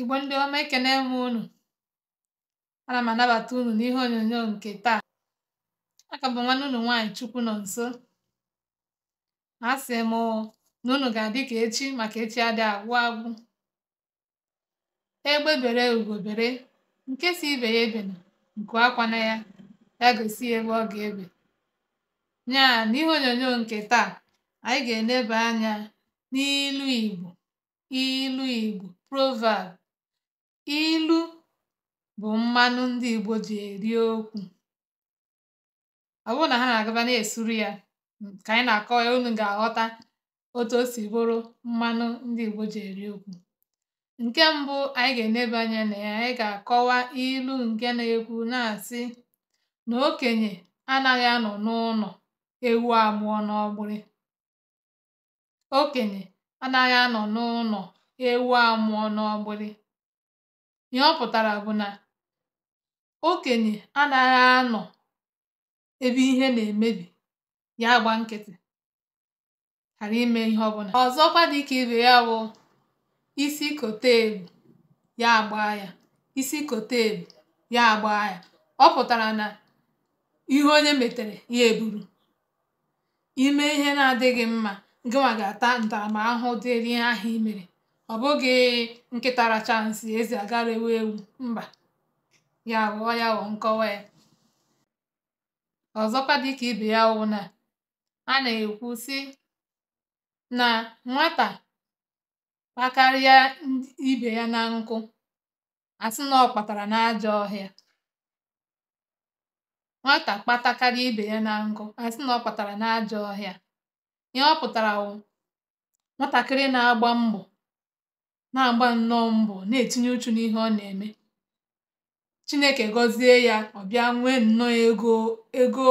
Igbo ndị ọma ekene m unu ana m anabata unu n'ihe onyonyo nke taa aka bụ nwanne unu nwaanyị chukwu nọ nso a asị m na unu ga-adị ka echi maka echi adị agwụ agwụ egbe bere ugo nke si ibe ya ebe na nke akwa na ya ya gosi ebe ọ ga-ebe nya n'ihe onyonyo nke taa anyị ga eneba anya n'ilu Igbo ilu Igbo proverb Ilu bụ mmanụ ndị Igbo ji eri okwu. Ọ bụrụ na ha na-agaba na-esuru ya ka anyị na-akọwa ya unu ga-aghọta otu o si bụrụ mmanụ ndị Igbo ji eri okwu. Nke mbụ anyị ga enebe anya na ya anyị ga-akọwa ilu nke na-ekwu na-asị na okenye anaghị anọ n'ụnọ ewu amụọ n'ọgbụrị. Okenye anaghị anọ n'ụnọ ewu amụọ n'ọgbụrị. Ihe ọ pụtara bụ na okenye anaghị anọ ebe ihe na-emebi, ya agba nkịtị, ghara ime ihe ọ ọbụla. Ọzọkwa dịka ibe ya bụ isi koteelu ya agbaa ya, isi koteelu ya agbaa ya. Ọ pụtara na ihe onye metere, ya eburu. ime ihe na-adịghị mma, gịnwa ga-ata ntaramahụhụ dịịrị ihe ahụ i mere. Ọ bụghị nkịta chansị eze ezi agara ewu. Mba, ya aghọọ ya ghọọ nkọwa ya. Ọzọkwa dịka ibe ya wụ na a na-ekwu sị na nwata kpakarịa ibe ya na nkụ, a na ọ kpatara ibe ya na nkụ, a na ọ ọhịa. Ihe ọ pụtara wụ nwatakịrị na-agba mbọ na-agba nnọọ mbọ na-etinye uchu n'ihe ọ na-eme, Chineke gọzie ya ọ bịa nwee nnọọ ego ego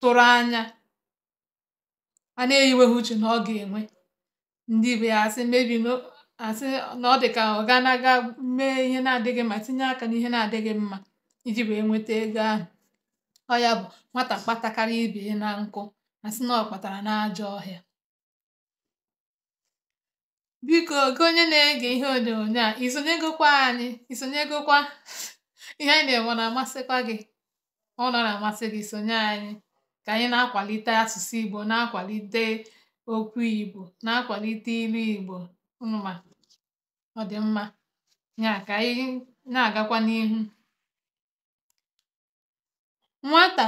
tụrụ anya a na-eyiweghị uche na ọ ga-enwe. Ndị ibe ya asị asị na ọ dị ka ọ ga na-aga mee ihe na-adịghị mma tinye aka n'ihe na-adịghị mma iji wee nweta ego ahụ. Ọ ya bụ nwata kpatakwara ibe na nkụ asị na ọ kpatara n'ajọ ọhịa. Biko gị onye na-ege ihe onyonyo a isonyegokwa anyị isonyegokwa ihe anyị na-enwe na-amasịkwa gị ọ na na-amasị gị sonye anyị ka anyị na-akwalite asụsụ Igbo na-akwalite okwu Igbo na-akwalite ilu Igbo mma ọ dị mma ya ka anyị na-agakwa n'ihu nwata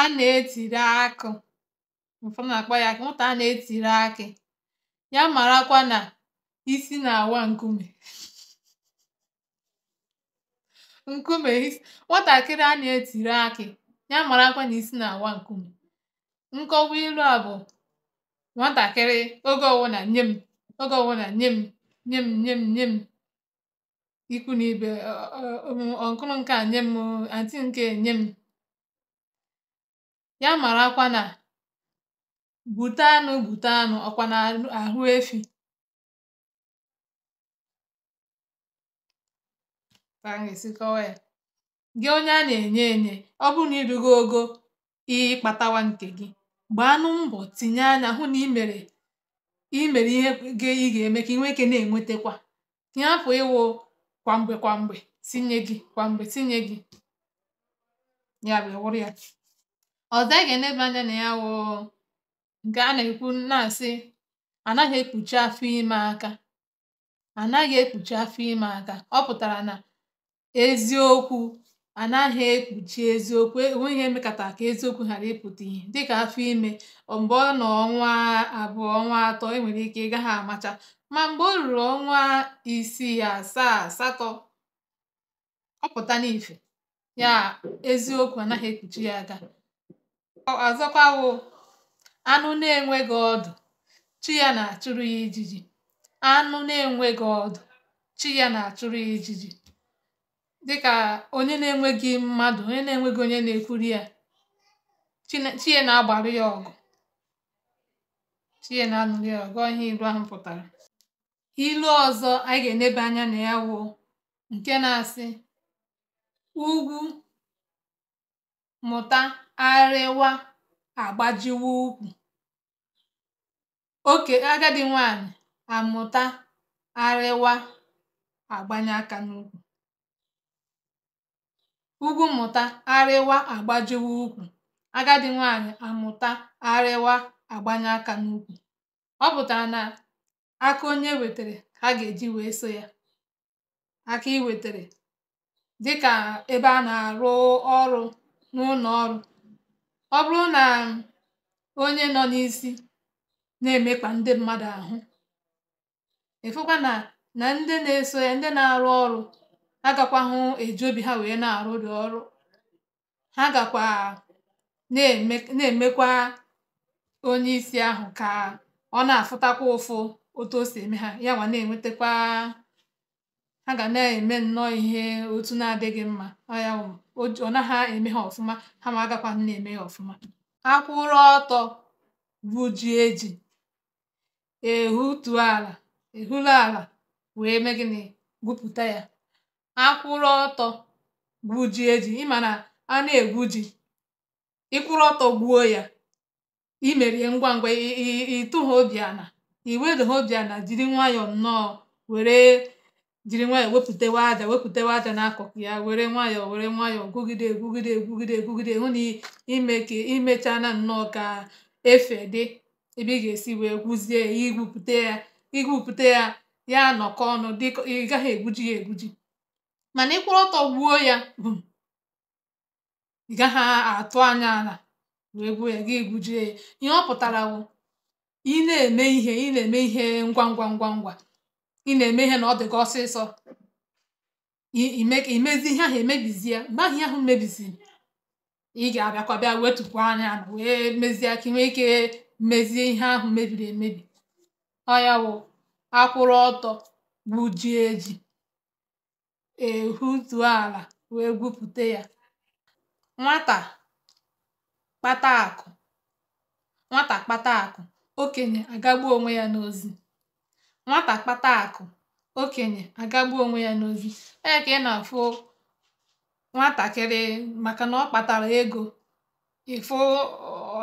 a na-etiri akụ ụfọdụ na-akpọ ya nwata a na-etiri akị ya marakwa na isi na-awa nkume nkume isi. nwatakịrị a na-etiri akị ya marakwa na isi na-awa nkume nkọwa ilu a bụ nwatakịrị oge ọwụna nye m oge ọwụna nye m nye m nye m nye m ikwu na ibe ọnkụrụ nke a nye m antị nke nye m ya marakwa na Gbute anụ Gbute anụ, ọkwa na ahụ efi? Ka m ga-esi kọwaa ya. Gị onye a na-enye enye, ọ bụrụ na irugo ogo ịkpatawa nke gị, anụ mbọ tinye anya hụ na imere mere mere ihe gị ị ga-eme ka i ike na enwetekwa Ka ị ịwụ kwa mgbe kwa mgbe tinye gị kwa mgbe tinye gị. Ya bụ wụrụ ya. ọ anyị ga anya na ya wụ nke a na-ekwu na asị anaghị ekpuchi afọ ime aka anaghị ekpuchi afọ ime aka ọ pụtara na eziokwu anaghị ekpuchi eziokwu enweghi ihe mekàtà eziokwu ghara ịpụta ịpụta ihe dịka afọ ime mgbe ọ nọ ọnwa abụọ ọnwa atọ e ike ịga ha amacha ma mgbe o ruru ọnwa isii asaa asatọ ọ ya eziokwu anaghị ekpuchi ya aka Anụ na-enweghị ọdụ, chi ya na-achụrụ ya ijiji. Anụ na-enweghị ọdụ, chi ya na Dịka onye na-enweghị mmadụ, onye na-enweghị onye na-ekwuru ya, chi ya na-agbarụ ya ọgụ. Chi ya na anụrị ya ọgụ. ihe ilu ahụ pụtara. Ilu ọzọ anyị ga enebe anya na ya wụ nke na-asị, ugwu mụta arịwa agbajiwa ukwu oke agadi nwanyị amụta arịwa agbanye aka n'ukwu ugwu mmụta arịwa agbajiwa ukwu agadi nwanyị amụta arịwa agbanye aka n'ukwu ọ pụtara na aka onye wetere ka a ga-eji wee so ya aka i dị dịka ebe a na-arụ ọrụ n'ụlọ ọrụ ọ bụrụ na onye nọ n'isi na emekwa ndị mmadụ ahụ ịfụkwa na na ndị na-eso ya ndị na-arụ ọrụ agakwahụ eji obi ha wee na-arụ dị ọrụ ha gakwa na-emekwa onye isi ahụ ka ọ na-afụtakwa ụfụ otu o si eme ha ya nwa na-enwetakwa ha ga na-eme nnọọ ihe otu na-adịghị mma ọya ọ naghị eme ha ọfụma ha ma agakwaghị na-eme ya ọfụma akwụrụ ọtọ bụ ji eji ehutu ala ehulu ala wee mee gịnị gwupụta ya akwụrụ ọtọ gwuo ji eji ịma na a na-egwu ji ịkwụrụ ọtọ gbuo ya imerie ngwa ngwa ịtụ ha obi iwedo ha obi jiri nwayọọ nnọọ were jiri nwayọọ wepụtewa aja wepụtewa aja n'akụkụ ya were nwayọ were nwayọọ gwugide egwugide egwugide egwugide hụ na imechana nnọọ ka efe dị ebe ị ga-esi wee gwuzie ya igwupụta ya igwupụta ya ya nọkọ ọnụ dịka ị gaghị egwuji ya egwuji mana ịkwụrụ ọtọ gbuo ya bụ ị gaghị atụ anya ala wee gwuo ya gị gwujie ya ihe ọ pụtara bụ ị na-eme ihe ị na-eme ihe ngwa ngwa ngwa ngwa ị na-eme ihe na ọ dị gị ọsịsọ imezi ihe ahụ emebizie mgbe ahụ ihe ahụ mebiziri ị ga-abịakwa bịa anya wee mezie ka ike mezie ihe ahụ mebiri emebi ọ ya akwụrụ ọtọ gbujie ji ehutuo ala wee gwupụta ya nwata kpata nwata kpata akụ okenye agagbuo onwe ya n'ozi Nwata kpata akụ, okenye agagbuo onwe ya n'ozi. Ọ ya ka ị na-afụ nwatakịrị maka na ọ kpatara ego, ịfụ fụ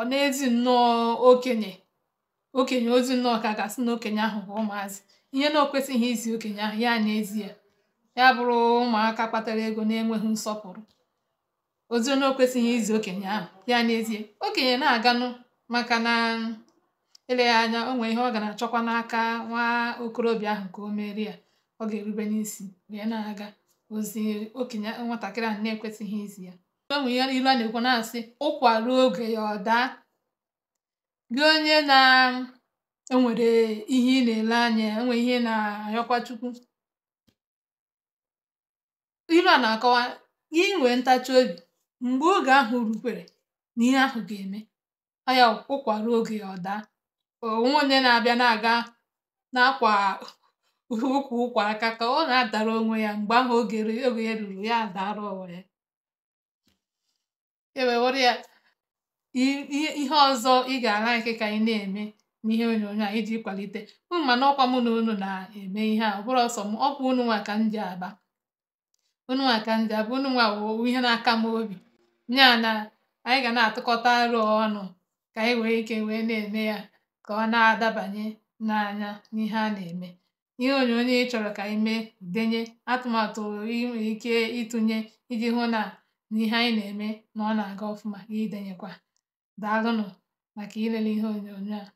ọ n'ezi nnọọ okenye okenye ozi nnọọ ka a na okenye ahụ bụ ụmụazị. Ihe na o izi okenye ahụ, ya na ya. bụrụ ụmụaka kpatara ego na-enweghị nsọpụrụ. Ozi na o izi okenye ahụ, ya na Okenye na-aganụ maka na Eleghị anya o nwee ihe ọ ga na-achọkwa n'aka nwa okorobịa ahụ ka o mere ya ọ ga-erube n'isi wee na-aga ozi okenye nwatakịrị ahụ na-ekwesịghị izi ya onwe nwere ihe ilu a na-ekwu na-asị ụkwa ruo oge ya ọ daa gị onye na-enwere ihe ị na-ele anya enwe ihe na-ayọkwa Chukwu ilu a na-akọwa gị nwee ntachi obi mgbe oge ahụ rukwere na ihe ahụ ga-eme ọ ya ụkwa ruo oge ya ọ daa onwe onye na-abịa na-aga n'akwa ụkwụ ụkwụ aka ka ọ na-adara onwe ya mgbe ahụ oge ya e ruru ya adara onwe ya ewewere ya ihe ọzọ ị ga-ala ike ka anyị na-eme n'ihe onyonyo a iji kwalite mma mana ọkwa mụ na unu na-eme ihe a ọ bụrụ ọsọ m ọkwa unu nwa ka aba unu nwa ka aba unu nwa wụ ihe na-aka m obi nya na anyị ga na-atụkọta arụ ọnụ ka anyị nwere ike wee na-eme ya ka ọ na-adabanye n'anya n'ihe a na-eme. Ihe onyonyo ị chọrọ ka ime denye atụmatụ i ike ịtụnye iji hụ na n'ihe anyị na-eme na ọ na-aga ọfụma, gị denyekwa. Daalụnụ maka ilele ihe onyonyo a.